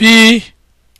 P